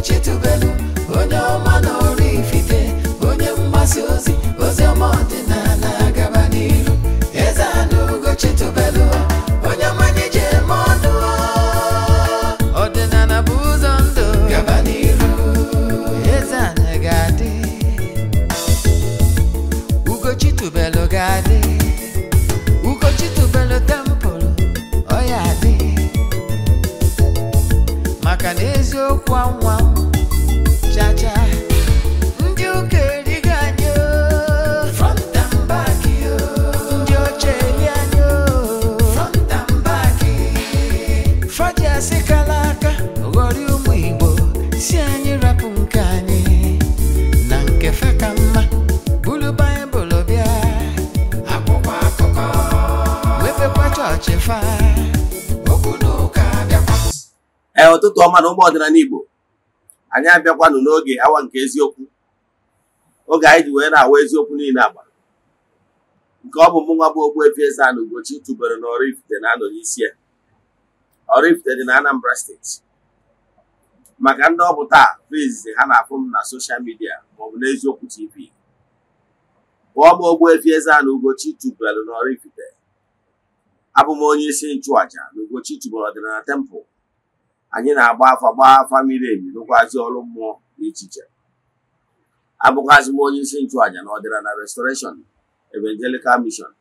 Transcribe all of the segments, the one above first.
put you too bed. ọma na ụmụ ọdịnala Igbo anyị abịakwanụ n'oge awa nke eziokwu oge anyị ji wee na-awa eziokwu niile agba nke ọ bụ m nwa bụ Ogbuefi Eze-Ana Ugochi tụbere na Oraifite na-anọ n'isi ya Oraifite dị na Anambra steeti maka ndị ọ bụ taa bụ izizi ha na-afụ m na soshal midia maọbụ n'eziokwu tv pụọ m Ogbuefi Eze-Ana Ugochi tụbere na Oraifite abụ m onye isi nchụàja na Ugochi tụbere ọdịnala tempụl anyị na-agba afa gbaa afa miri emi rụkwazi ọrụ mmụọ na echiche abụkwazị m onye isi nchụàja na ọdịnala na restoration evangelical mission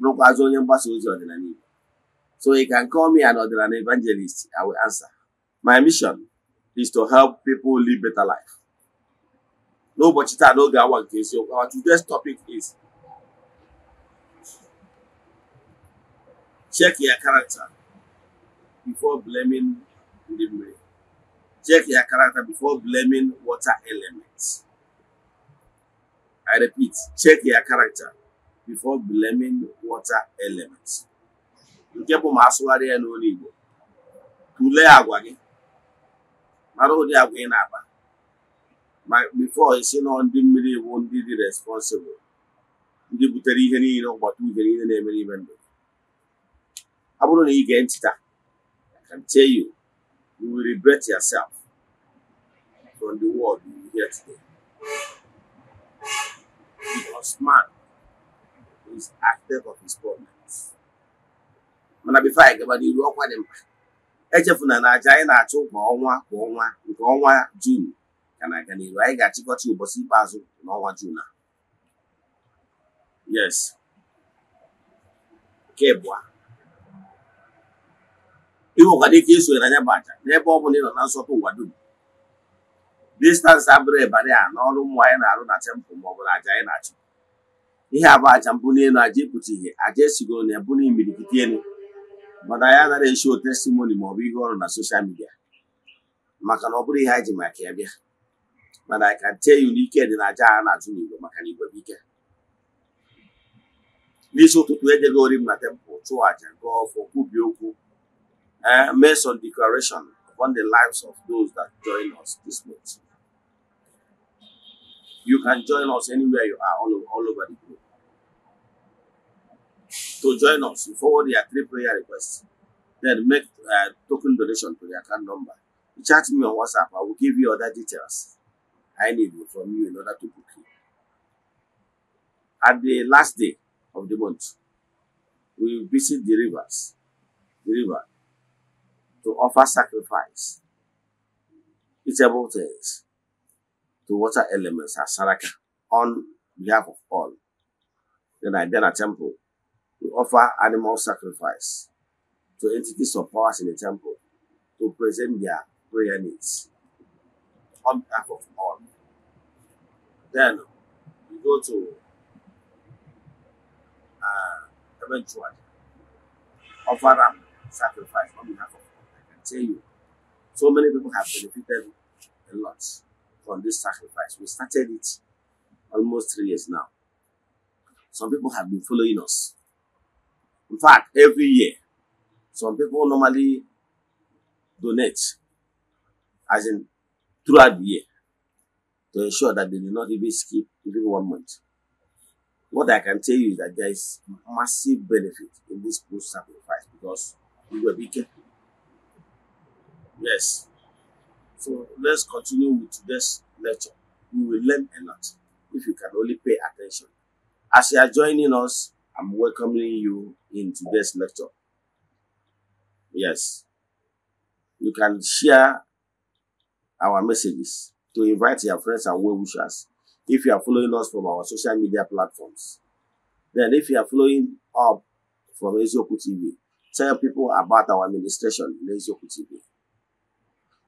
bụrụkwazị onye mgbasa ozi ọdịnala Igbo so you can call me an ọdịnala evangelist I will answer my mission is to help people live better life n'ụbọchị taa n'oge awa nke eziokwu our today's topic is check your character before blaming ndị mmiri check your character before blaming water elements i repeat check your character before blaming water elements nke bụ asụgharị ya n'olu igbo tulee agwa gị mara ụdị agwa ị na-akpa ma before isi nọ ndị mmiri bụ ndị dị responsible ndị butere ihe niile ụgbọta uhie na-emere ọ bụrụ na ị you will regret yourself from the word you will hear today. Because man is active of his problems. mana bifo anyị gaba n'iru ọkwa dị mkpa echefuna na aja anyị na-achụ kwa ọnwa kwa ọnwa nke ọnwa jun ka na-aga n'iru anyị ga-achịkọta ụbọchị ikpeazụ n'ọnwa jun a yes nke bụ ịhụkwa dịka esonye na anya bụ aja n'ebe ọ bụla ị nọ na nsọtụ ụwa dum distansị abụrụ ịbarị a n'ọrụ mmụọ anyị na-arụ na tempụ ma ọ bụla aja anyị na-achụ ihe abụ aja mbụ n'elu aja ịpụta ihe aja esigoro na ebu n'imirikiti elu mana anyị anaghị esi testimoni ma maọbụ ihe ọrụ na soshal midia maka na ọ bụrụ ihe anyị ji maka ya bịa mana anyị ka tee ya n'ike dị na aja a na-achụ n'igwe maka na igwe ike n'isi ụtụtụ e ori m na tempụl chụọ aja gụọ ọfọ kwubie okwu uh, eh, made some declaration upon the lives of those that join us this month. You can join us anywhere you are, all over, all over the globe. To join us, you forward your three prayer requests, then make a uh, eh, token donation to the account number. You chat me on WhatsApp, I will give you other details I need from you in order to book you. At the last day of the month, we visit the rivers, the river, to offer sacrifice, eatable things to water elements as Saraka on behalf of all. Then I then a temple to offer animal sacrifice to entities or powers in the temple to present their prayer needs on behalf of all. Then we go to uh, eventually offer up sacrifice on behalf of tell you, so many people have benefited a lot from this sacrifice. We started it almost three years now. Some people have been following us. In fact, every year, some people normally donate, as in throughout the year, to ensure that they do not even skip even one month. What I can tell you is that there is massive benefit in this post sacrifice because we were bigger Yes. So let's continue with today's lecture. You will learn a lot if you can only pay attention. As you are joining us, I'm welcoming you in today's lecture. Yes. You can share our messages to invite your friends and well wishers if you are following us from our social media platforms. Then, if you are following up from Ezioku TV, tell people about our administration in Ezioku TV.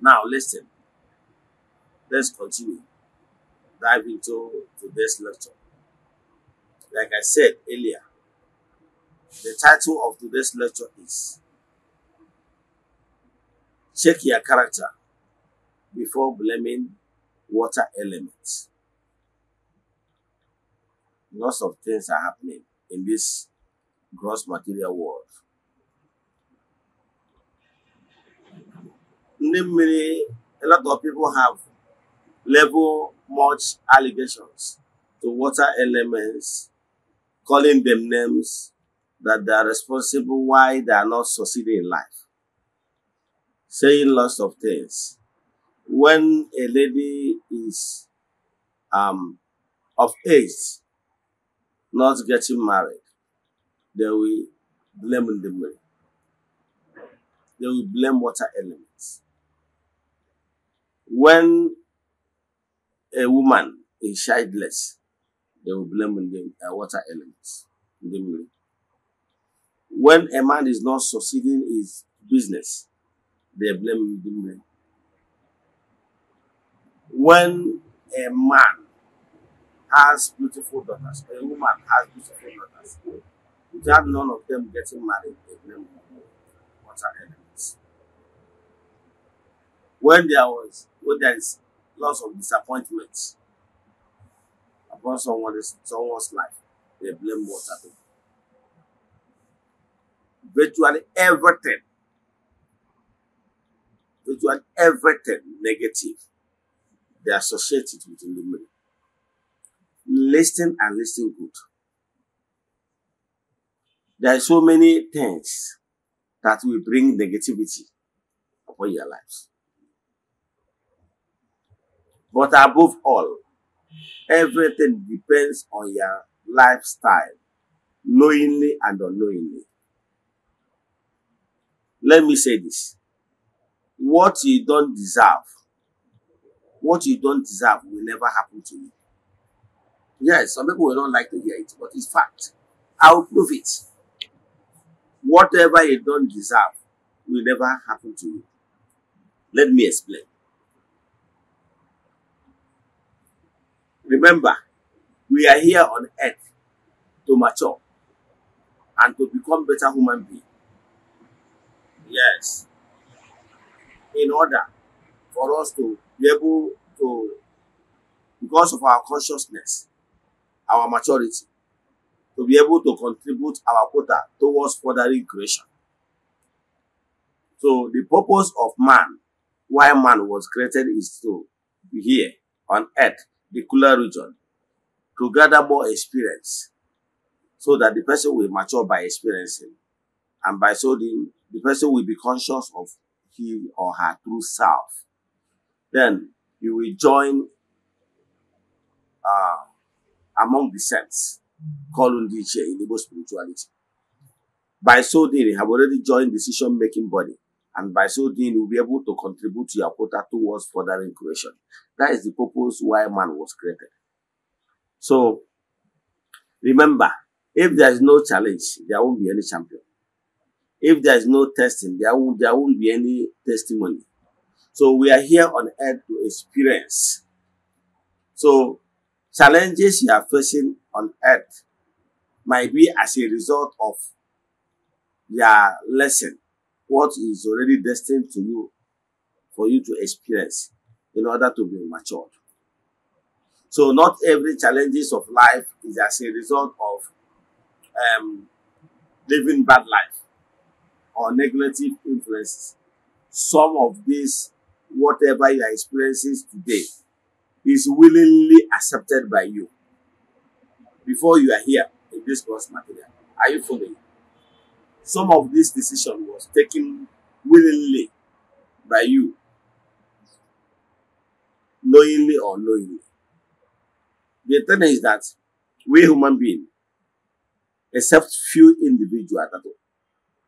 Now, listen. Let's continue. Dive into today's lecture. Like I said earlier, the title of today's lecture is Check Your Character Before Blaming Water Elements. Lots of things are happening in this gross material world. Namely, a lot of people have level much allegations to water elements calling them names that they are responsible why they are not succeeding in life saying lots of things when a lady is um, of age not getting married they will blame the money they will blame water elements. when a woman is childless, they will blame in the uh, water elements in the milk. When a man is not succeeding his business, they blame the milk. When a man has beautiful daughters, a woman has beautiful daughters, without none of them getting married, they blame water elements. When there was where there is lots of disappointments upon someone someone's life, they blame water. Virtually everything, virtually everything negative, they associate it with illumination. Listen and listen good. There are so many things that will bring negativity upon your lives. But above all, everything depends on your lifestyle, knowingly and unknowingly. Let me say this. What you don't deserve, what you don't deserve will never happen to you. Yes, some people will not like to hear it, but it's fact. I will prove it. Whatever you don't deserve will never happen to you. Let me explain. Remember, we are here on earth to mature and to become better human beings. Yes. In order for us to be able to, because of our consciousness, our maturity, to be able to contribute our quota towards furthering creation. So the purpose of man, why man was created is to be here on earth the cooler region to gather more experience so that the person will mature by experiencing. And by so doing, the person will be conscious of him or her true self. Then you will join uh, among the saints, called Undiche in Igbo spirituality. By so doing, you have already joined decision-making body. And by so doing, you'll be able to contribute to your quota towards furthering creation. That is the purpose why man was created. So, remember, if there is no challenge, there won't be any champion. If there is no testing, there won't, there won't be any testimony. So we are here on earth to experience. So challenges you are facing on earth might be as a result of your lesson, what is already destined to you for you to experience in order to be matured. So not every challenges of life is as a result of um, living bad life or negative influences. Some of these, whatever you are experiencing today, is willingly accepted by you before you are here in this course material. Are you following? Some of this decision was taken willingly by you knowingly or unknowingly. The thing is that we human beings, except few individuals that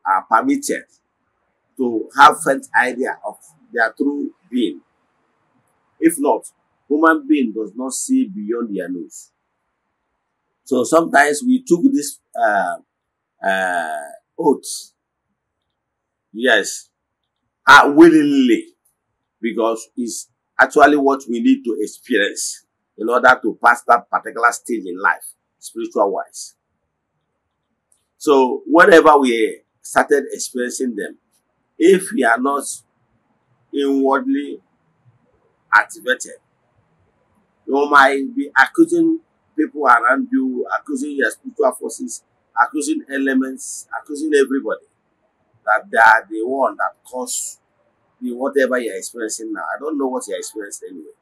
are permitted to have faint idea of their true being. If not, human being does not see beyond their nose. So sometimes we took this uh, uh, oath, yes, uh, willingly, because it's actually what we need to experience in order to pass that particular stage in life, spiritual wise. So whatever we started experiencing them, if we are not inwardly activated, you might be accusing people around you, accusing your spiritual forces, accusing elements, accusing everybody that they are the one that caused you whatever you're experiencing now. I don't know what you're experiencing anyway,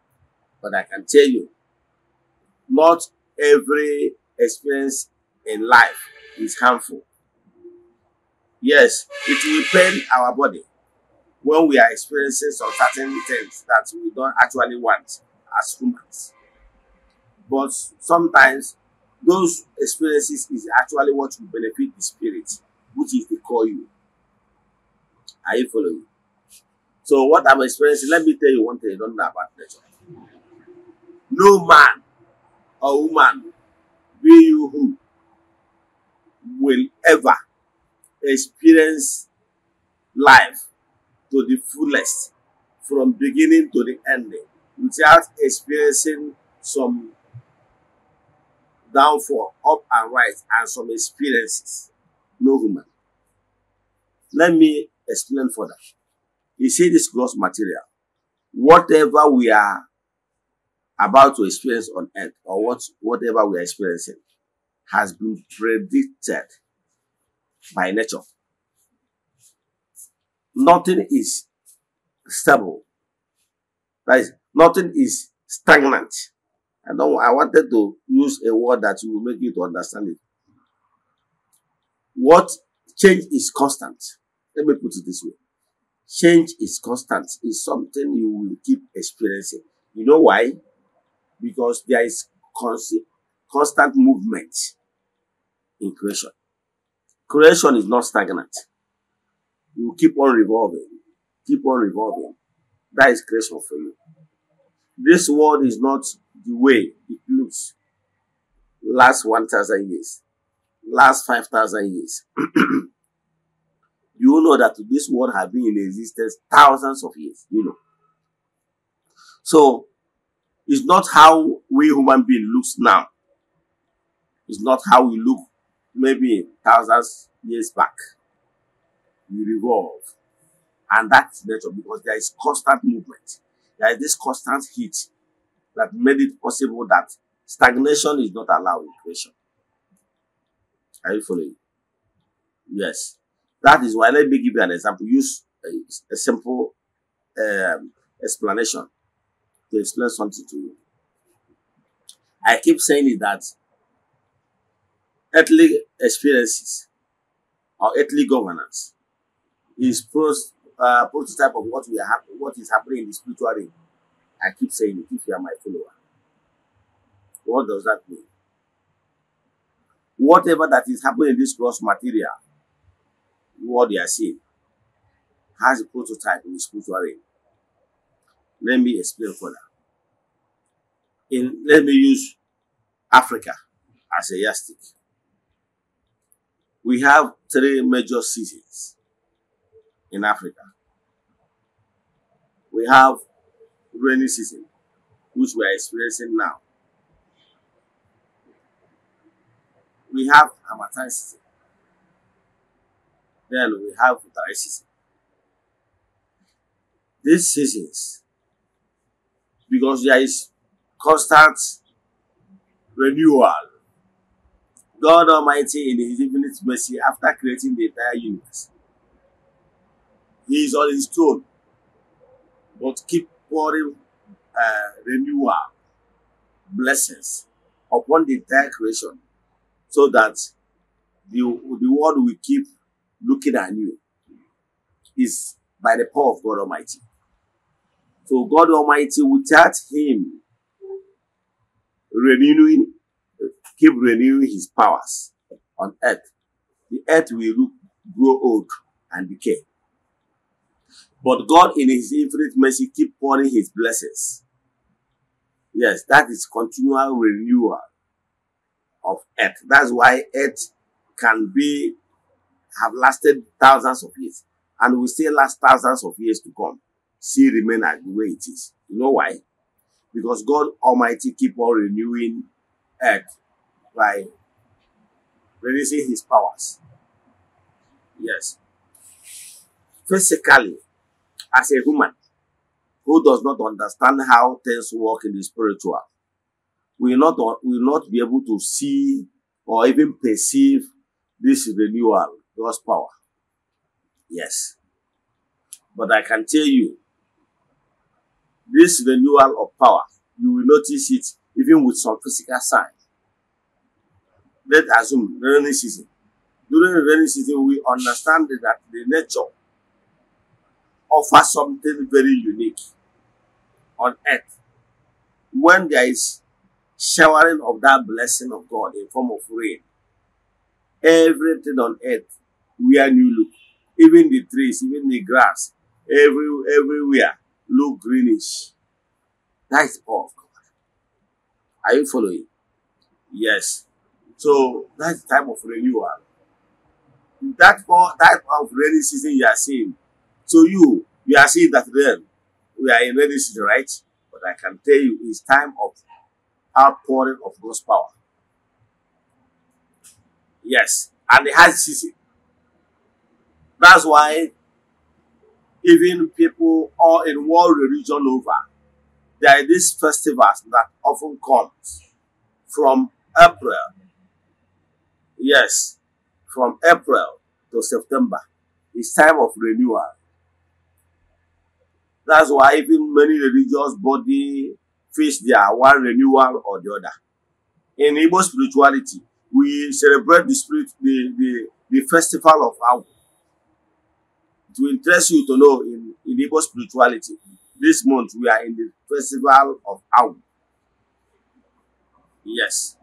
but I can tell you, not every experience in life is harmful. Yes, it will pain our body when we are experiencing some certain things that we don't actually want as humans. But sometimes those experiences is actually what will benefit the spirit, which is the call you. Are you following? So what I'm experiencing, let me tell you one thing you don't know about nature. No man or woman, be you who, will ever experience life to the fullest from beginning to the ending without experiencing some downfall up and right and some experiences. No human. Let me explain further. He said this gross material. Whatever we are about to experience on earth or what, whatever we are experiencing has been predicted by nature. Nothing is stable. That is, nothing is stagnant. I don't, I wanted to use a word that will make you to understand it. What change is constant. Let me put it this way change is constant. It's something you will keep experiencing. You know why? Because there is constant, constant movement in creation. Creation is not stagnant. You keep on revolving, keep on revolving. That is creation for you. This world is not the way it looks. Last 1,000 years, last 5,000 years. you know that this world has been in existence thousands of years, you know. So it's not how we human being looks now. It's not how we look maybe thousands years back. We revolve. And that's nature because there is constant movement. There is this constant heat that made it possible that stagnation is not allowed in creation. Are you following? Yes. That is why, let me give you an example. Use a, a simple um, explanation to explain something to you. I keep saying that earthly experiences or earthly governance is first uh, prototype of what we have, what is happening in the spiritual realm. I keep saying it if you are my follower. What does that mean? Whatever that is happening in this gross material what they are saying has a prototype in the spiritual realm. Let me explain further. In, let me use Africa as a yardstick. We have three major cities in Africa. We have rainy season, which we are experiencing now. We have Hamatan season, then we have dry season. These seasons, because there is constant renewal. God Almighty, in His infinite mercy, after creating the entire universe, He is on His throne, but keep pouring uh, renewal, blessings upon the entire creation, so that the, the world will keep looking at you is by the power of God Almighty. So God Almighty, without him renewing, keep renewing his powers on earth, the earth will look, grow old and decay. But God in his infinite mercy keep pouring his blessings. Yes, that is continual renewal of earth. That's why earth can be have lasted thousands of years and will still last thousands of years to come, see remain as the way it is. You know why? Because God Almighty keep on renewing earth by releasing his powers. Yes. Physically, as a human who does not understand how things work in the spiritual, will not, will not be able to see or even perceive this renewal power. Yes. But I can tell you, this renewal of power, you will notice it even with some physical signs. Let's assume rainy season. During the rainy season, we understand that the nature offers something very unique on earth. When there is showering of that blessing of God in form of rain, everything on earth wear new look. Even the trees, even the grass, every, everywhere look greenish. That is power of God. Are you following? Yes. So that's the time of renewal. That's that power, that of rainy season you are seeing. So you, you are seeing that then, We are in rainy season, right? But I can tell you, it's time of outpouring of God's power. Yes, and it has season. That's why even people all in world religion over, there are these festivals that often comes from April. Yes, from April to September. It's time of renewal. That's why even many religious body face their one renewal or the other. In Igbo spirituality, we celebrate the spirit, the, the, the festival of our. To interest you to know in, in Igbo spirituality. This month we are in the festival of Awu. Yes.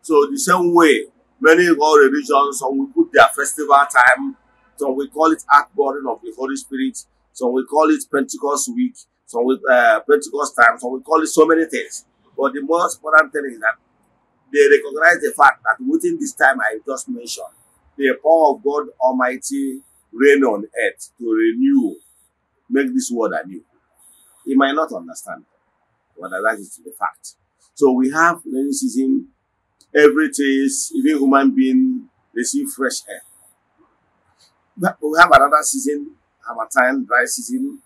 So the same way many all religions, some we put their festival time, some we call it outpouring of the Holy Spirit, some we call it Pentecost week, some will uh, Pentecost time, some we call it so many things. But the most important thing is that they recognize the fact that within this time I just mentioned, the power of God Almighty reign on earth to renew, make this world anew. He might not understand, but that is the fact. So we have rainy season, every taste, even human being receive fresh air. But we have another season, have a time, dry season.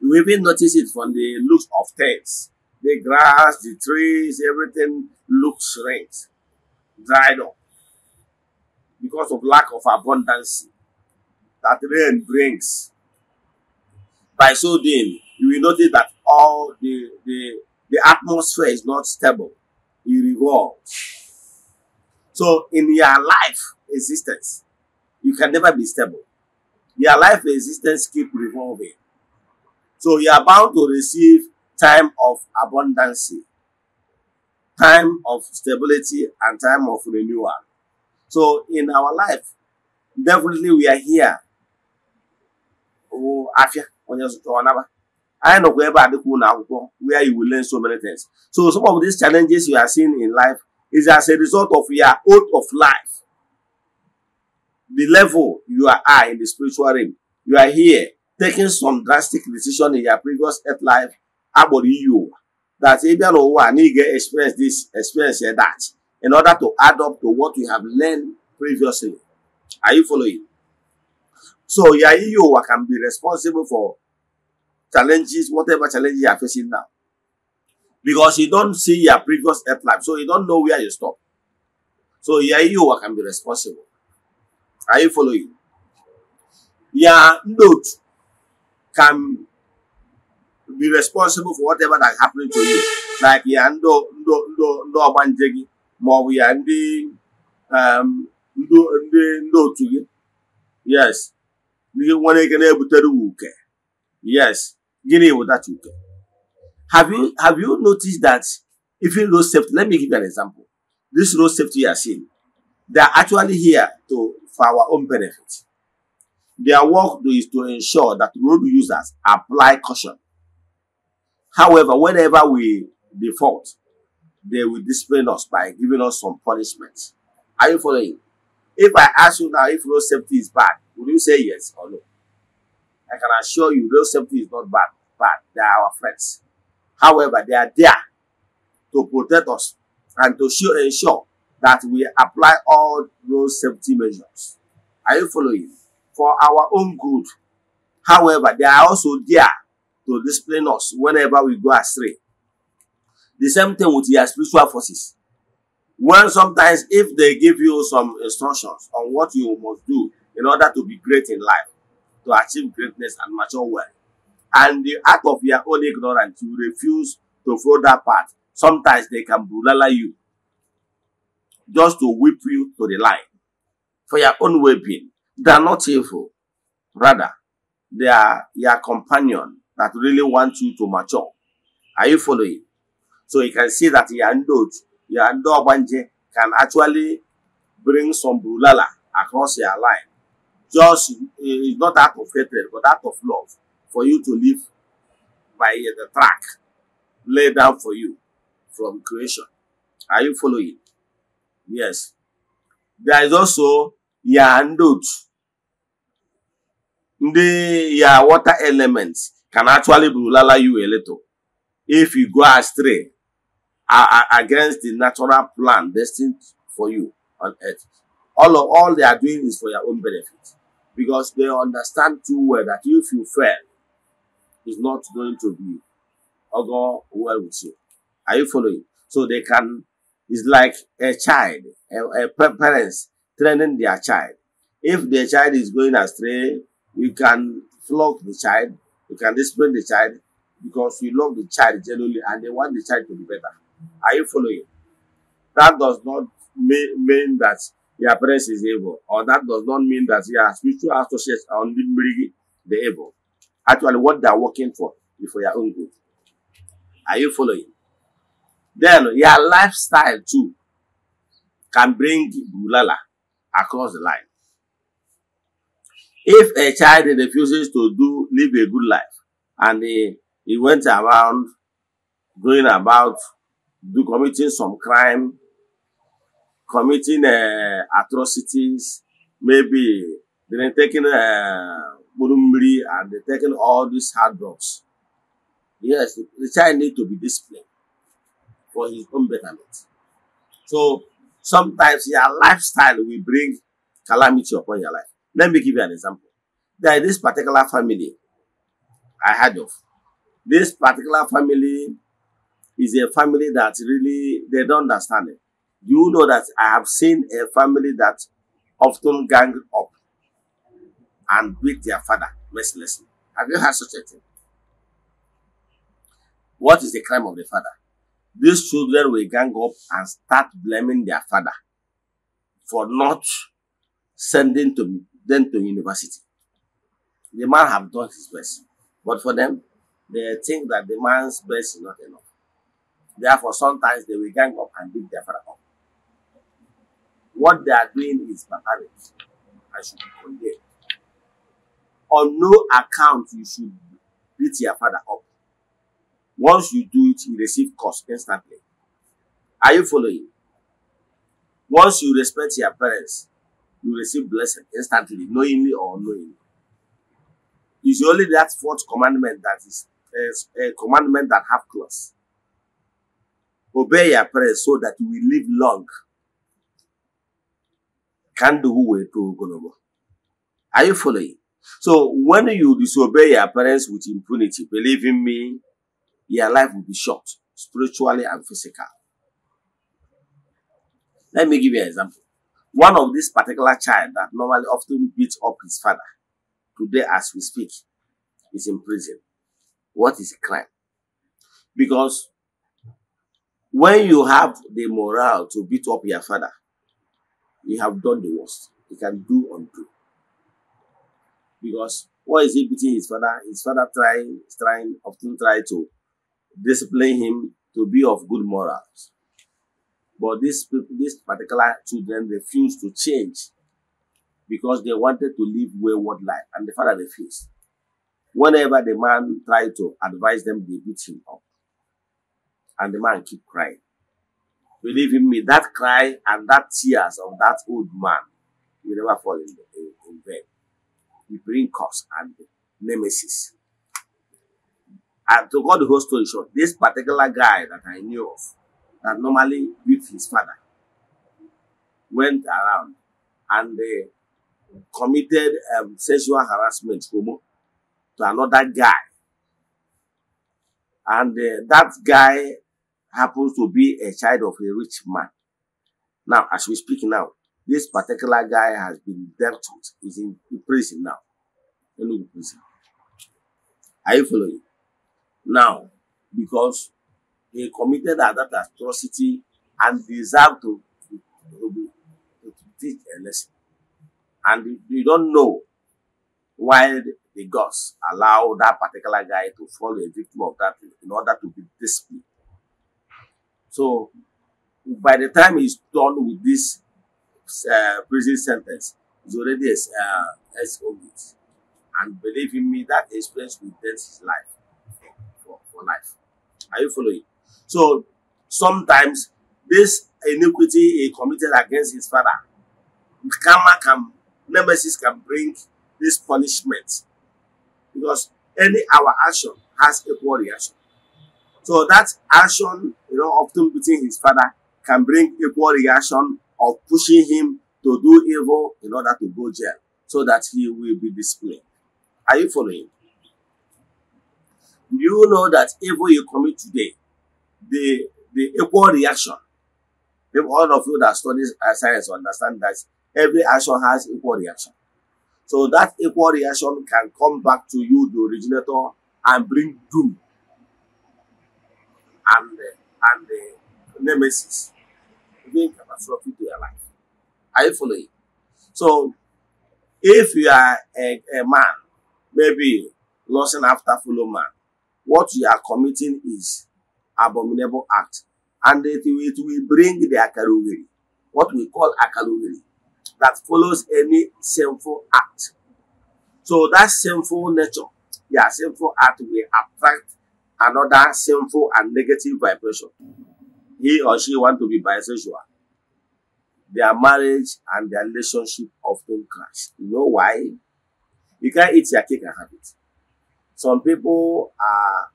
You even notice it from the looks of things. The grass, the trees, everything looks rent, dried up because of lack of abundance that rain brings. By so doing, you will notice that all the, the, the atmosphere is not stable. It revolves. So in your life existence, you can never be stable. Your life existence keep revolving. So you are bound to receive time of abundance, time of stability, and time of renewal. So in our life, definitely we are here wụ afịa onye zụtara ọnaba anyị nọkwa ebe a dịkwa ụlọ akwụkwọ where you will learn so many things so some of these challenges you are seeing in life is as a result of your out of life the level you are at in the spiritual realm you are here taking some drastic decision in your previous earth life agbọrọ iyi ụwa that ị bịa n'ụwa na ị ga-experience this experience that in order to add up to what you have learned previously are you following So you are Yayiyowa can be responsible for challenges, whatever challenges you are facing now. Because you don't see your previous earth life, so you don't know where you stop. So you are Yayiyowa can be responsible. Are you following? Your note can be responsible for whatever that happening to you. Like ya ndo ndo ndo ndo ọgbanje gị maọbụ ya ndị um, ndị ndị otu gị. Yes ihe nwere ike na-ebutere uwe uke yes gịnị bụ that uke have you have you noticed that even road safety let me give you an example this road safety you are seeing they are actually here to for our own benefit their work is to ensure that road users apply caution however whenever we default they will discipline us by giving us some punishment are you following If I ask you now if road safety is bad, would you say yes or no? I can assure you road safety is not bad. But They are our friends. However, they are there to protect us and to show, ensure that we apply all road safety measures. Are you following? For our own good. However, they are also there to discipline us whenever we go astray. The same thing with their spiritual forces. When sometimes if they give you some instructions on what you must do in order to be great in life, to achieve greatness and mature well, and the act of your own ignorance, you refuse to follow that path, sometimes they can bulala you just to whip you to the line for your own well-being. They are not evil. Rather, they are your companion that really wants you to mature. Are you following? So you can see that your note your Ndogbanje can actually bring some brulala across your line. Just, eh, it's not out of hatred, but out of love for you to live by the track laid down for you from creation. Are you following? Yes. There is also Yandot. The your water elements can actually brulala you a little if you go astray are, are against the natural plan destined for you on earth. All of all they are doing is for your own benefit because they understand too well that if you fail, it's not going to be or oh go well with you. Are you following? So they can, it's like a child, a, a parents training their child. If their child is going astray, you can flog the child, you can discipline the child because you love the child genuinely and they want the child to be better. Are you following? That does not mean that your parents is evil, or that does not mean that your spiritual associates are only bring the evil. Actually, what they are working for is for your own good. Are you following? Then your lifestyle too can bring bulala across the line. If a child refuses to do live a good life and he, he went around going about do committing some crime, committing uh, atrocities, maybe they're taking uh, and they're taking all these hard drugs. Yes, the, child need to be disciplined for his own betterment. So sometimes your lifestyle will bring calamity upon your life. Let me give you an example. There is this particular family I heard of. This particular family is a family that really they don't understand it. You know that I have seen a family that often gang up and beat their father mercilessly. Have you heard such a thing? What is the crime of the father? These children will gang up and start blaming their father for not sending to them to university. The man have done his best, but for them, they think that the man's best is not enough. Therefore, sometimes they will gang up and beat their father up. What they are doing is barbaric. I should condemn. On no account you should beat your father up. Once you do it, you receive curse instantly. Are you following? Once you respect your parents, you receive blessing instantly, knowingly or unknowingly. It's only that fourth commandment that is a eh, eh, commandment that have clause. Obey your parents so that you will live long. Can do way to Ogolobo. Are you following? So when you disobey your parents with impunity, believe in me, your life will be short, spiritually and physical. Let me give you an example. One of this particular child that normally often beats up his father, today as we speak, is in prison. What is crime? Because when you have the morale to beat up your father, you have done the worst. You can do undo. Because what is he beating his father? His father trying, trying, often try to discipline him to be of good morals. But this, this particular children refused to change because they wanted to live wayward life, and the father refused. Whenever the man tried to advise them, they beat him up. And the man keep crying. Believe in me, that cry and that tears of that old man will never fall in, the, in, in vain. He bring curse and nemesis. And to cut the whole story short, this particular guy that I knew of, that normally with his father, went around and uh, committed um, sexual harassment homo, to another guy. And uh, that guy happens to be a child of a rich man. Now, as we speak now, this particular guy has been dealt with, He's in, prison now. in prison. Are you following? Now, because he committed that, atrocity and deserved to, to, to, to teach a lesson. And you don't know why the gods allow that particular guy to fall a victim of that in order to be disciplined. So by the time he's done with this uh, prison sentence, he's already ex uh, exonerated. And believe in me, that experience will dent his life for, for, for life. Are you following? So sometimes this iniquity he committed against his father, karma can, nemesis can bring this punishment because any our action has equal reaction. So that action know, often beating his father can bring equal reaction of pushing him to do evil in order to go jail so that he will be disciplined. Are you following? Do You know that evil you commit today, the, the equal reaction, if all of you that study science understand that every action has equal reaction. So that equal reaction can come back to you, the originator, and bring doom and uh, and the nemesis being catastrophic to your life. Are you following? So, if you are a, a man, maybe lusting after fellow man, what you are committing is abominable act, and it will, it will bring the akalogiri, what we call akalogiri, that follows any sinful act. So that sinful nature, yeah, sinful act will attract another sinful and negative vibration. He or she want to be bisexual. Their marriage and their relationship often crash. You know why? You can't eat your cake and have it. Some people are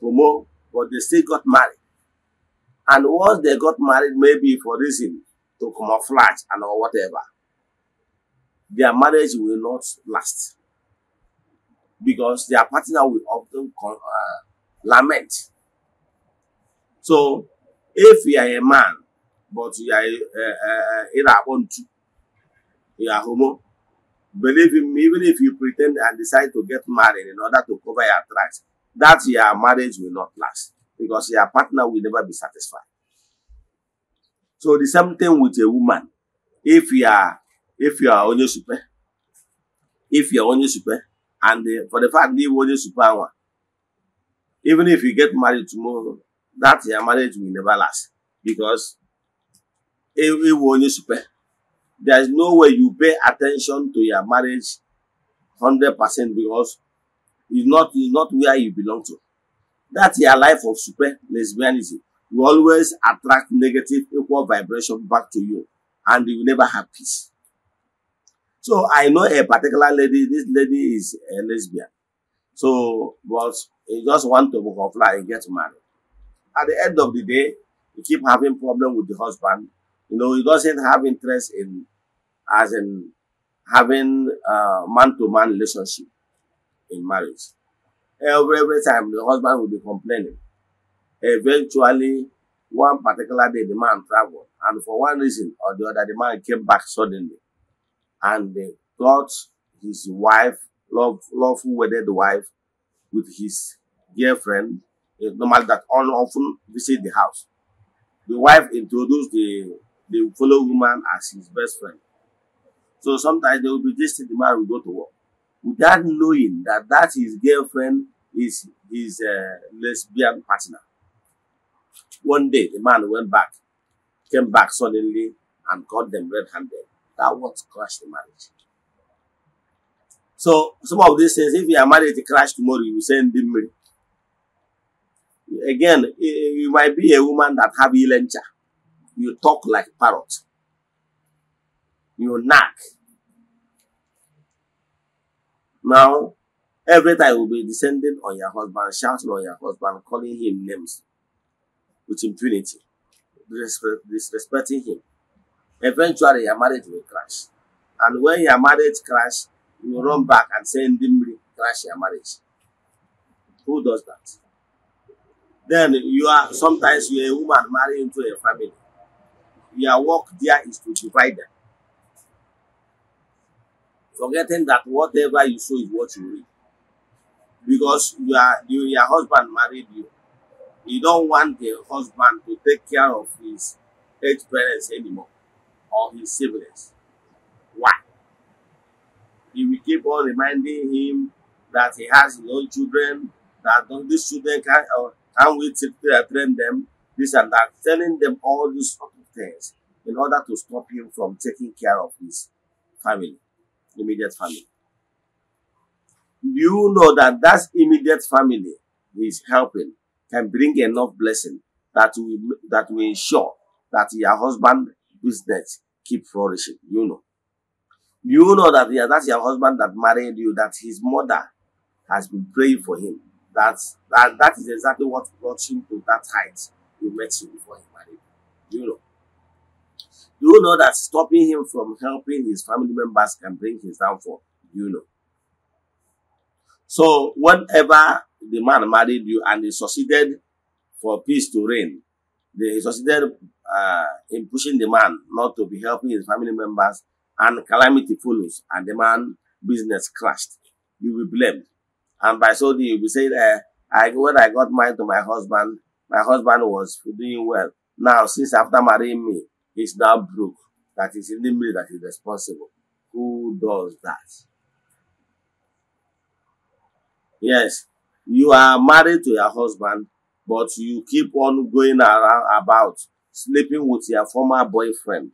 homo, but they still got married. And once they got married, maybe for reason to camouflage and or whatever, their marriage will not last because their partner will often con- uh, lament. So, if you are a man, but you are in a unto, you are homo, believe him, even if you pretend and decide to get married in order to cover your tracks, that your marriage will not last because your partner will never be satisfied. So the same thing with a woman. If you are if you are only super, if you are only super, and the, eh, for the fact that you only super one, even if you get married tomorrow that your marriage will never last because ewu onye super there is no way you pay attention to your marriage hundred percent because it's not it's not where you belong to that's your life of super lesbianism you always attract negative equal vibration back to you and you never have peace so i know a particular lady this lady is a lesbian So, but you just want to butterfly and get married. At the end of the day, he keep having problem with the husband. You know, he doesn't have interest in, as in having a man-to-man -man relationship in marriage. Every, every time the husband will be complaining. Eventually, one particular day, the man traveled. And for one reason or the other, the man came back suddenly. And they got his wife love, lawful wedded wife with his girlfriend, a eh, normal that often visit the house. The wife introduced the, the fellow woman as his best friend. So sometimes they will be just the man will go to work without knowing that that his girlfriend is his uh, lesbian partner. One day, the man went back, came back suddenly and caught them red-handed. That was crushed the marriage. So some of these things, if your marriage crash tomorrow, you send them money. Again, you might be a woman that have elencha. You talk like parrot. You knock. Now, every time you will be descending on your husband, shouting on your husband, calling him names with impunity, disrespecting him. Eventually, your marriage will crash. And when your marriage crash, you run back and say Ndimri crash your marriage. Who does that? Then you are sometimes you're a woman married into a family. Your work there is to divide them. Forgetting that whatever you show is what you read. Because you are you, your husband married you. You don't want the husband to take care of his aged parents anymore or his siblings. Why? he will keep on reminding him that he has his own children, that these children can, or can we train them, this and that, telling them all these sort of things in order to stop him from taking care of his family, immediate family. You know that that immediate family he is helping can bring enough blessing that will that will ensure that your husband business keep flourishing. You know. You know that yeah, that's your husband that married you, that his mother has been praying for him. That's that, that is exactly what brought him to that height you met him before he married. You know. You know that stopping him from helping his family members can bring his downfall. You know. So whenever the man married you and he succeeded for peace to reign, they succeeded uh, in pushing the man not to be helping his family members and calamity follows and the man business crashed, you will be blamed. And by so doing, you will say, uh, eh, I, when I got married to my husband, my husband was doing well. Now, since after marrying me, he's now broke. That is in the me that is responsible. Who does that? Yes, you are married to your husband, but you keep on going around about sleeping with your former boyfriend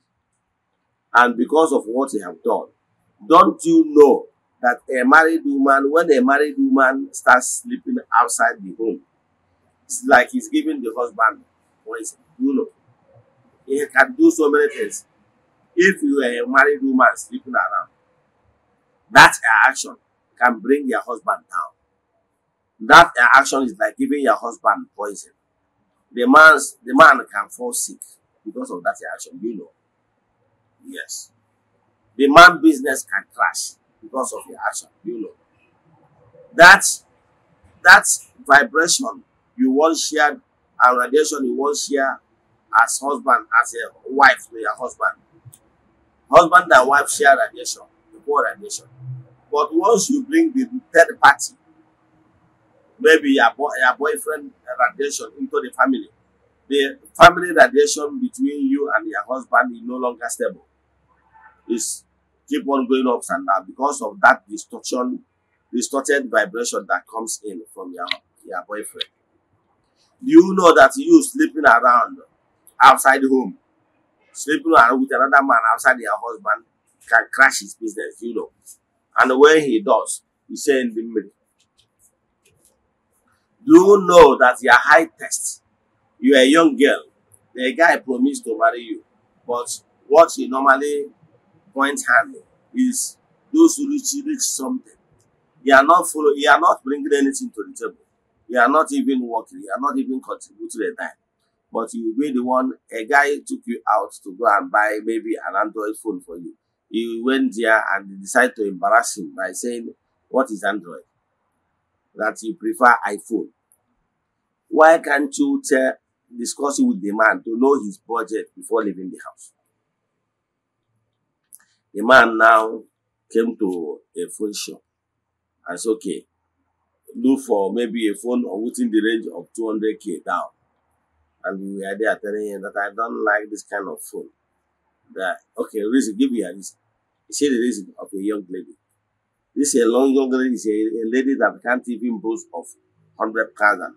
and because of what you have done. Don't you know that a married woman, when a married woman starts sleeping outside the home, it's like he's giving the husband poison. You know, he can do so many things. If you are a married woman sleeping around, that action can bring your husband down. That action is like giving your husband poison. The man's the man can fall sick because of that action. You know. Yes. The man business can crash because of your action, you know. That that vibration you once share and radiation you once share as husband, as a wife to your husband. Husband and wife share radiation, the poor radiation. But once you bring the third party, maybe your, boy, your boyfriend radiation into the family, the family radiation between you and your husband is no longer stable is keep on going up and down because of that distortion, distorted vibration that comes in from your, your boyfriend. you know that you sleeping around outside the home, sleeping around with another man outside your husband can crash his business, you know. And when he does, he's say in the middle. Do you know that your high test? You're a young girl. The guy promised to marry you, but what he normally point handling is those who reach, reach something. You are not follow, you are not bringing anything to the table. You are not even working. You are not even contributing a dime. But you will be the one, a guy took you out to go and buy maybe an Android phone for you. You went there and decided to embarrass him by saying, what is Android? That you prefer iPhone. Why can't you tell, discuss it with the man to know his budget before leaving the house? The man now came to a phone shop and said, okay, look for maybe a phone or within the range of 200k down. And we are there telling him that I don't like this kind of phone. That, okay, reason, give me a reason. He said the reason of a young lady. This is a long, young lady, is a, a lady that can't even boast of thousand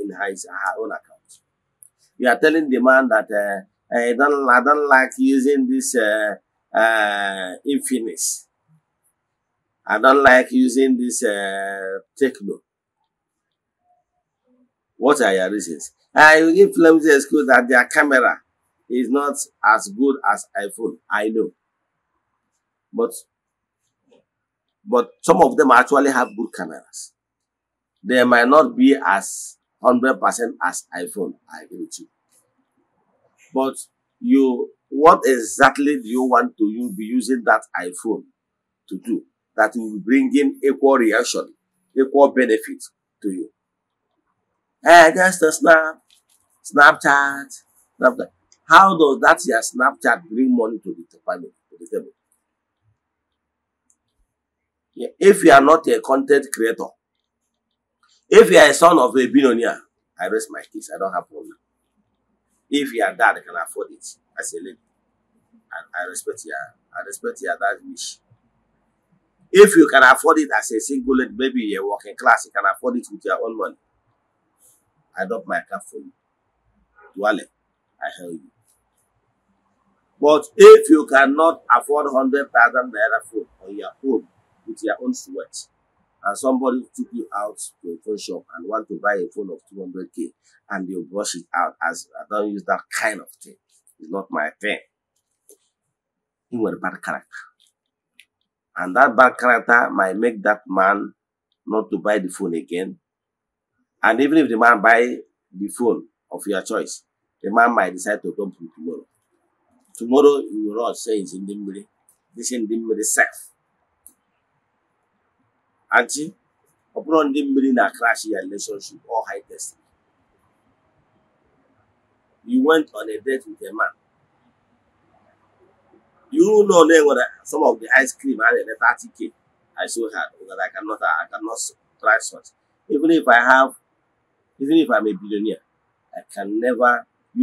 in her, her own account. You are telling the man that uh, Eh, I don't, I don't like using this uh, eh, uh, eh, Infinix. I don't like using this uh, Techno. What are your reasons? I will give them the excuse that their camera is not as good as iPhone. I know. But but some of them actually have good cameras. They might not be as 100% as iPhone. I agree with you. But you, what exactly do you want to you be using that iPhone to do that will bring in equal reaction, equal benefit to you? Hey, that's the snap, Snapchat, Snapchat. How does that your Snapchat bring money to the family, to the table? Yeah. If you are not a content creator, if you are a son of a billionaire, I rest my case. I don't have problem. If you and dad can afford it as a lady, I, I respect your I respect your dad wish. If you can afford it as a single lady, maybe you're working class, you can afford it with your own money. I drop my cap for you. Dwale, I help you. But if you cannot afford 100,000 naira food on your own with your own sweat, and somebody took you out to a phone shop and want to buy a phone of 200k and they brush it out as I don't use that kind of thing. It's not my thing. He was a bad character. And that bad character might make that man not to buy the phone again. And even if the man buy the phone of your choice, the man might decide to come to tomorrow. Tomorrow, you will not say it's in the middle. This in the middle self. Aunty, ọ bụrụ ndị mmiri na crash ya relationship or high test? You went on a date with a man. You know then what some of the ice cream had a 30k. I still had because I cannot I cannot try such. Even if I have even if I'm a billionaire, I can never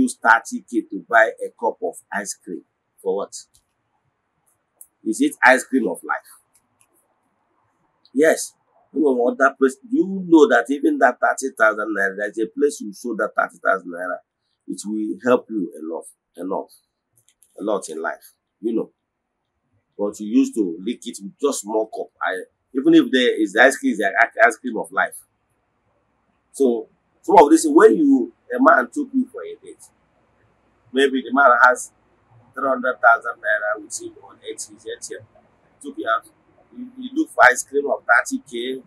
use 30k to buy a cup of ice cream. For what? Is it ice cream of life? Yes. You know that place you know that even that thirty thousand naira, there's a place you show that thirty thousand naira, it will help you a lot, a lot, a lot in life, you know. But you used to lick it with just small cup. I even if there is ice cream, is the ice cream of life. So some of this when you a man took you for a date, maybe the man has three hundred thousand naira with him on eight years, took you out you, you look for ice cream of 30k.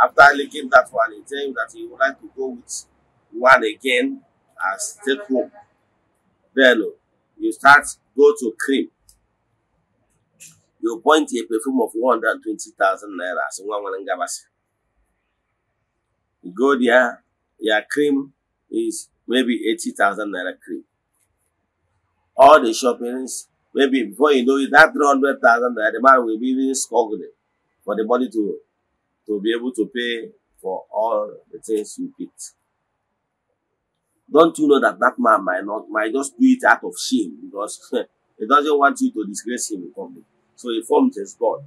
After licking that one, he tell you that he would like to go with one again as take home. Then oh, you start go to cream. You point a perfume of 120,000 naira So, one one gabasi. You go there, your cream is maybe 80,000 naira cream. All the shoppings Maybe before you know it, that 300,000 that the man will be even struggling for the money to, to be able to pay for all the things you picked. Don't you know that that man might not, might just do it out of shame because he doesn't want you to disgrace him in public. So he formed his God.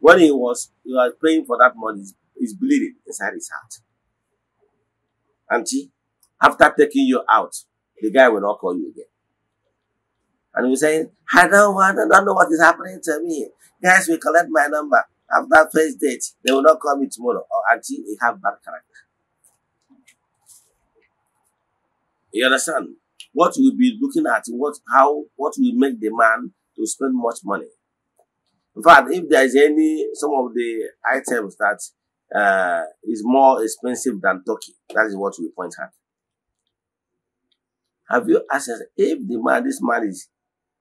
When he was, he was praying for that money, he's bleeding inside his heart. Auntie, after taking you out, the guy will not call you again and we say, I don't want, I don't know what is happening to me. Guys, we collect my number. After first date, they will not call me tomorrow or oh, until they have bad character. You understand? What we'll be looking at, what how what will make the man to spend much money. In fact, if there is any some of the items that uh, is more expensive than Turkey, that is what we point at. Have you asked if the man this man is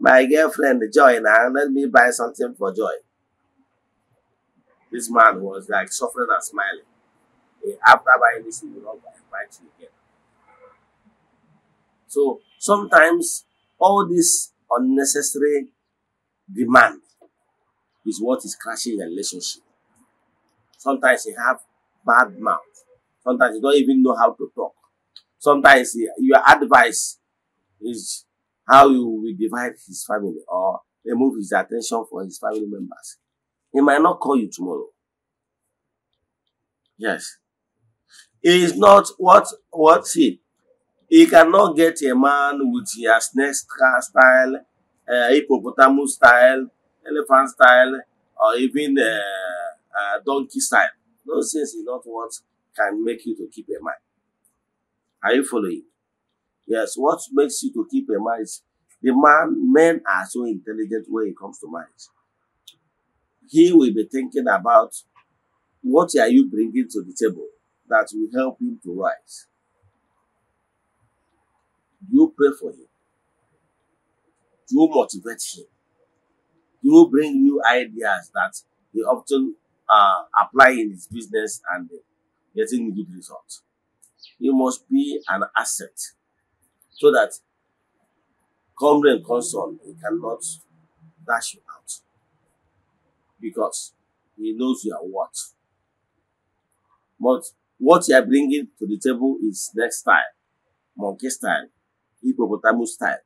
My girlfriend, Joy, now let me buy something for Joy. This man was like suffering and smiling. After buying this, you know, not buy you again. So sometimes all this unnecessary demand is what is crashing your relationship. Sometimes you have bad mouth. Sometimes you don't even know how to talk. Sometimes your advice is how he will divide his family or remove his attention from his family members. He might not call you tomorrow. Yes. He is not what what he he cannot get a man with a snake style, uh, hippopotamus style, elephant style, or even uh, uh, donkey style. Those things is not what can make you to keep a mind. Are you following? Yes, what makes you to keep a mind? The man, men are so intelligent when it comes to mind. He will be thinking about what are you bringing to the table that will help him to rise. Do you pray for him? Do you motivate him? Do you bring new ideas that he often uh, apply in his business and uh, getting good results? You must be an asset so that come and come he cannot dash you out because he knows you are what. But what you are bringing to the table is next style, monkey style, hippopotamus style.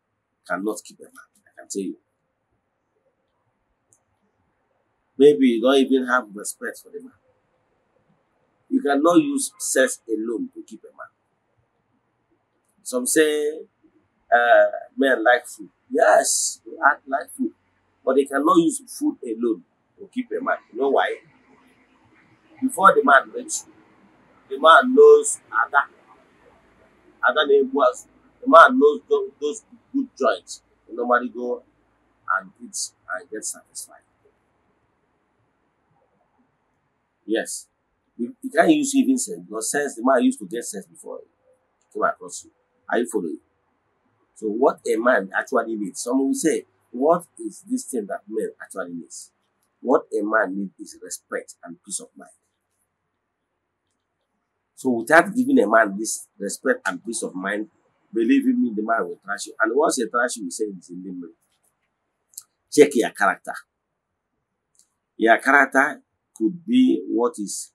Cannot keep a man, I can tell you. Maybe you don't even have respect for the man. You cannot use sex alone to keep a man. Some say uh, men like food. Yes, they act like food, but they cannot use food alone to keep a man. You know why? Before the man meets you, the man knows other, other name was the man knows those, good joints. Nobody normally go and eat and get satisfied. Yes, you, you can't use even sense because sense the man used to get sense before came across you. Are you following? So what a man actually needs. Someone will say, what is this thing that men actually needs? What a man needs is respect and peace of mind. So without giving a man this respect and peace of mind, believe me, the man will trash you. And once he trash you, he say it's in memory. Check your character. Your character could be what is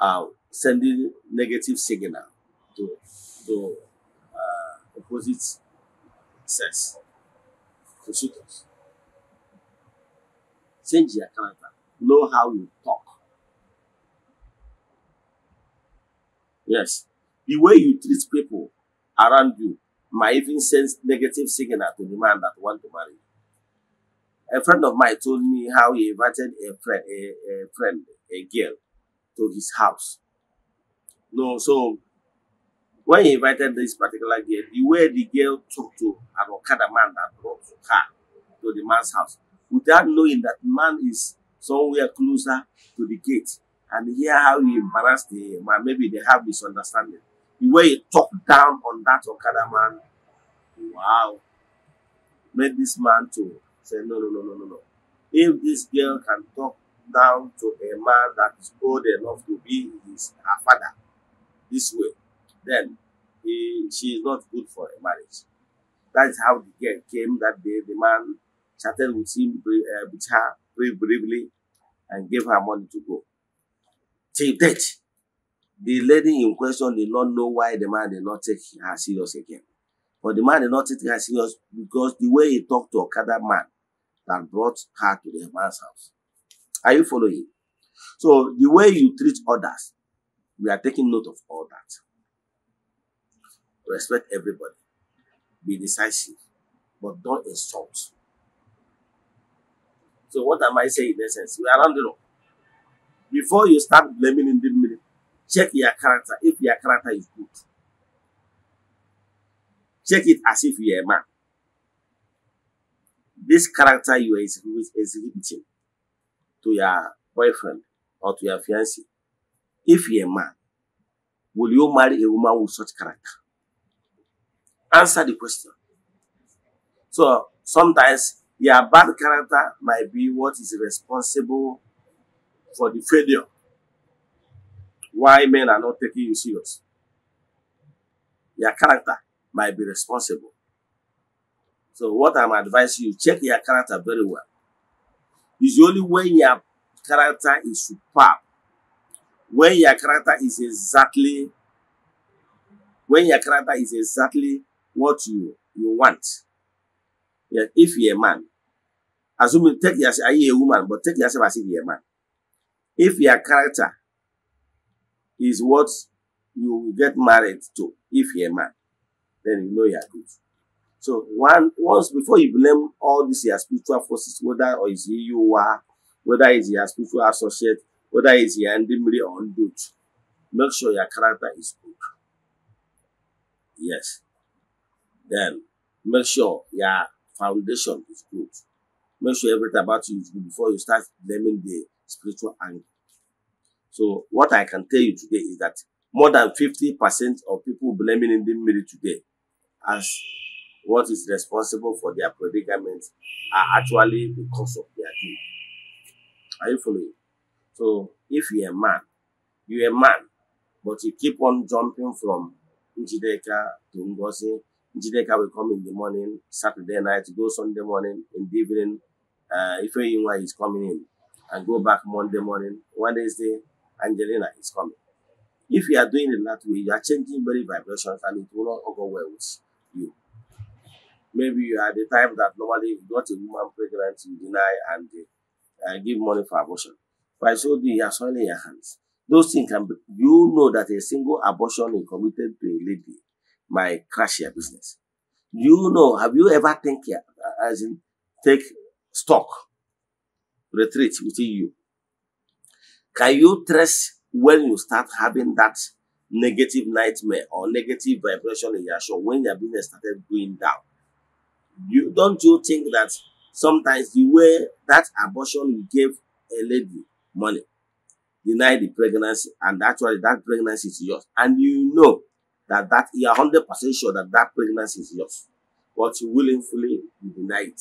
uh, sending negative signal to, to opposite sex to suit us. Change your character. Know how you talk. Yes. The way you treat people around you might even send negative signal to the man that want to marry A friend of mine told me how he invited a friend, a, a friend, a girl to his house. No, so when he invited this particular girl, the way the girl talked to an Okada man that brought her to the man's house, without knowing that man is somewhere closer to the gate, and hear how he embarrassed the man, maybe they have misunderstanding. The way he talked down on that Okada man, wow, made this man to say, no, no, no, no, no, no. If this girl can talk down to a man that is old enough to be his her father this way, then he, she is not good for a marriage. That is how the girl came that day. The man chatted with him, uh, with her very briefly, and gave her money to go. Till date, the lady in question did not know why the man did not take her serious again. But the man did not take her serious because the way he talked to Okada man that brought her to the man's house. Are you following? So the way you treat others, we are taking note of all that. Respect everybody. Be decisive, but don't insult. So what am I saying in essence? We are rounding up. Before you start blaming in the middle, check your character if your character is good. Check it as if you are a man. This character you are exhibiting to your boyfriend or to your fiancé, if you are a man, will you marry a woman with such character? answer the question. So sometimes your bad character might be what is responsible for the failure. Why men are not taking you serious. Your character might be responsible. So what I'm advising you, check your character very well. It's only when your character is superb, when your character is exactly, when your character is exactly what you you want. Yeah, if you're a man, assuming take yourself, are you a woman? But take yourself as if you're a man. If your character is what you will get married to, if you're a man, then you know you're good. So one once before you blame all these your spiritual forces, whether or is he you are, whether it's your spiritual associate, whether it's your endemry or undude, make sure your character is good. Yes. Then make sure your foundation is good. Make sure everything about you is good before you start blaming the spiritual angle. So what I can tell you today is that more than 50% of people blaming in the media today as what is responsible for their predicament are actually because of their deed. Are you following? So if you're a man, you're a man, but you keep on jumping from Njideka to Ngozi Jideka will come in the morning, Saturday night, go Sunday morning, in the evening. Uh, Ife Yinwa is coming in and go back Monday morning. Wednesday, Angelina is coming. If you are doing it that way, you are changing very vibrations and it will not go well with you. Maybe you are the type that normally you got a woman pregnant, you deny and uh, give money for abortion. By so doing, you are soiling your hands. Those things can be, you know that a single abortion is committed to a lady my cashier business. You know, have you ever think uh, as in take stock, retreat within you? Can you trust when you start having that negative nightmare or negative vibration in your show when your business started going down? You don't you think that sometimes the way that abortion you gave a lady money, deny the pregnancy, and actually that pregnancy is yours, and you know that that you are hundred percent sure that that pregnancy is yours, but you willingly you deny it.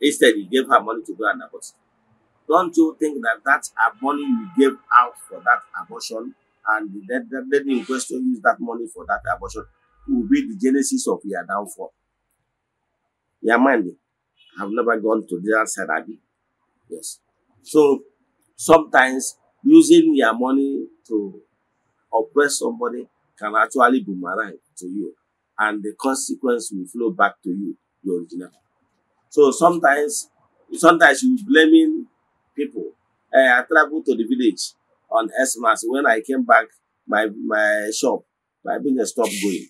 Instead, you gave her money to go and abort. Don't you think that that money you gave out for that abortion and the then in question use that money for that abortion will be the genesis of your downfall? Your mind, I've never gone to that side, Abby. Yes. So sometimes using your money to oppress somebody can actually boomerang to you and the consequence will flow back to you, the original. So sometimes, sometimes you blaming people. Uh, I traveled to the village on Christmas. When I came back, my my shop, my business stopped going.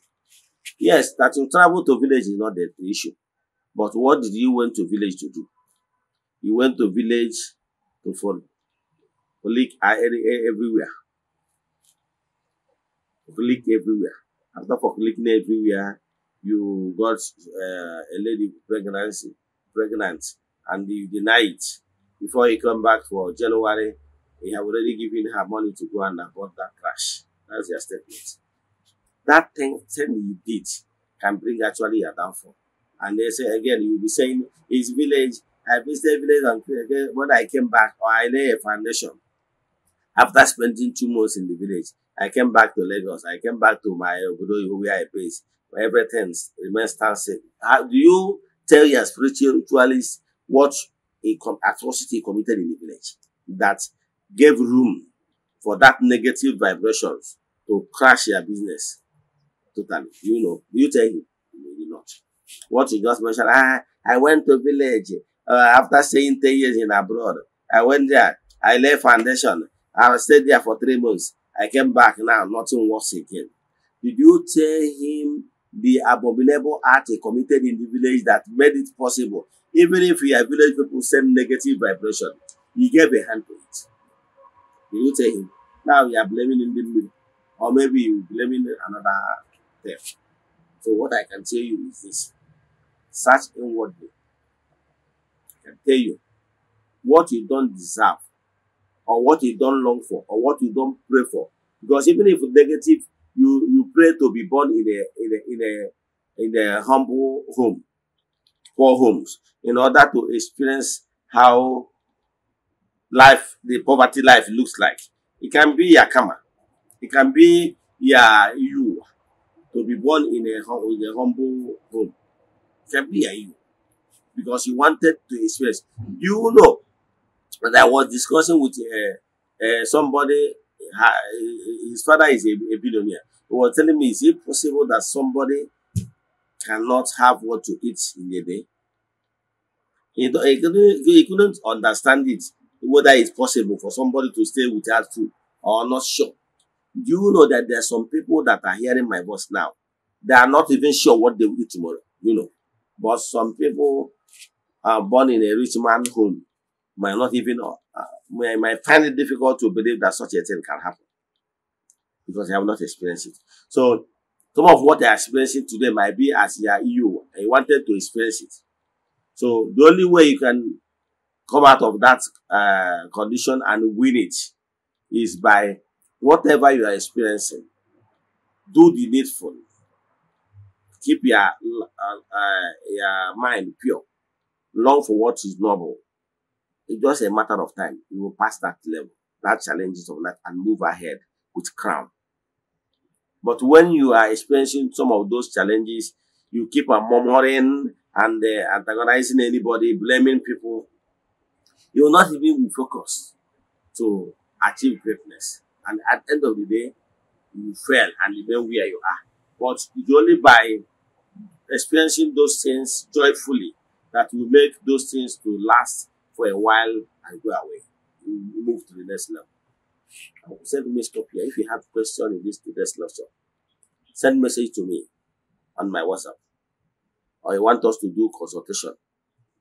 Yes, that you travel to village is not the issue, but what did you went to village to do? You went to village to for leak uh, everywhere Click everywhere. After clicking everywhere, you got uh, a lady pregnancy, pregnant, and you deny it. Before you come back for January, you have already given her money to go and abort that crash. That's your statement. That thing, thing you did can bring actually a downfall. And they say again, you'll be saying, his village, I visited village and when I came back, or I lay a foundation after spending two months in the village, I came back to Lagos. I came back to my Obodo where I place. Everything remains static. How do you tell your spiritualist what a atrocity committed in the village that gave room for that negative vibrations to crash your business totally? You know, you tell him, maybe not. What you just mentioned, ah, I went to village uh, after staying 10 years in abroad. I went there. I laid foundation. I stayed there for three months. I came back now, nothing works again. Did you tell him the abominable act he committed in the village that made it possible? Even if your village people send negative vibration, he gave a hand to it. Did you tell him? Now you are blaming in the middle, or maybe you blaming another theft. So what I can tell you is this. Search inwardly. I can tell you what you don't deserve or what you don't long for or what you don't pray for. Because even if negative, you, you pray to be born in a, in a, in a, in a humble home, poor homes, in order to experience how life, the poverty life looks like. It can be your karma. It can be your you to be born in a, in a humble home. It can be your you because you wanted to experience. You know, But I was discussing with uh, uh, somebody, his father is a, a billionaire. He was telling me, is it possible that somebody cannot have what to eat in a day? He, he, couldn't, he couldn't understand it, whether it's possible for somebody to stay without food or not sure. Do you know that there are some people that are hearing my voice now? They are not even sure what they will eat tomorrow, you know. But some people are born in a rich man home might not even, uh, uh may, might find it difficult to believe that such a thing can happen because they have not experienced it. So some of what they are experiencing today might be as e they are you and wanted to experience it. So the only way you can come out of that uh, condition and win it is by whatever you are experiencing, do the needful. Keep your, uh, uh, your mind pure. Long for what is noble. It's just a matter of time. You will pass that level, that challenges of life, and move ahead with crown. But when you are experiencing some of those challenges, you keep on murmuring and uh, antagonizing anybody, blaming people. You will not even focus to achieve greatness. And at the end of the day, you fail and remain where you are. But it's only by experiencing those things joyfully that will make those things to last for a while and go away. You move to the next level. I will send me stop here. If you have question in this to this lesson, send message to me on my WhatsApp. Or you want us to do consultation,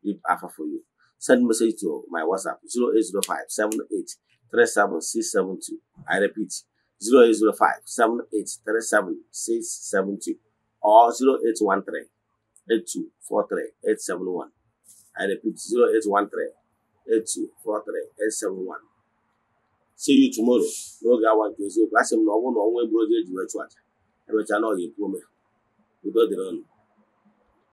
leave offer for you. Send message to my WhatsApp 0805 78 37672. I repeat 0805 78 37672 or 0813 8243 871. I repeat 0813 1 see you tomorrow n'oge awa nke eziokwu asị m na ọ bụrụ na ọnwa egburu oge eji wee chụ aja emechaa na ọ ga-ekwu ome udo dịrị ọnụ